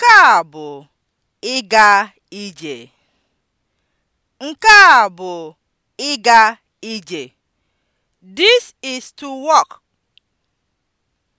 Nke a bụ ịga ije. Nke a bụ ịga ije. This is to walk.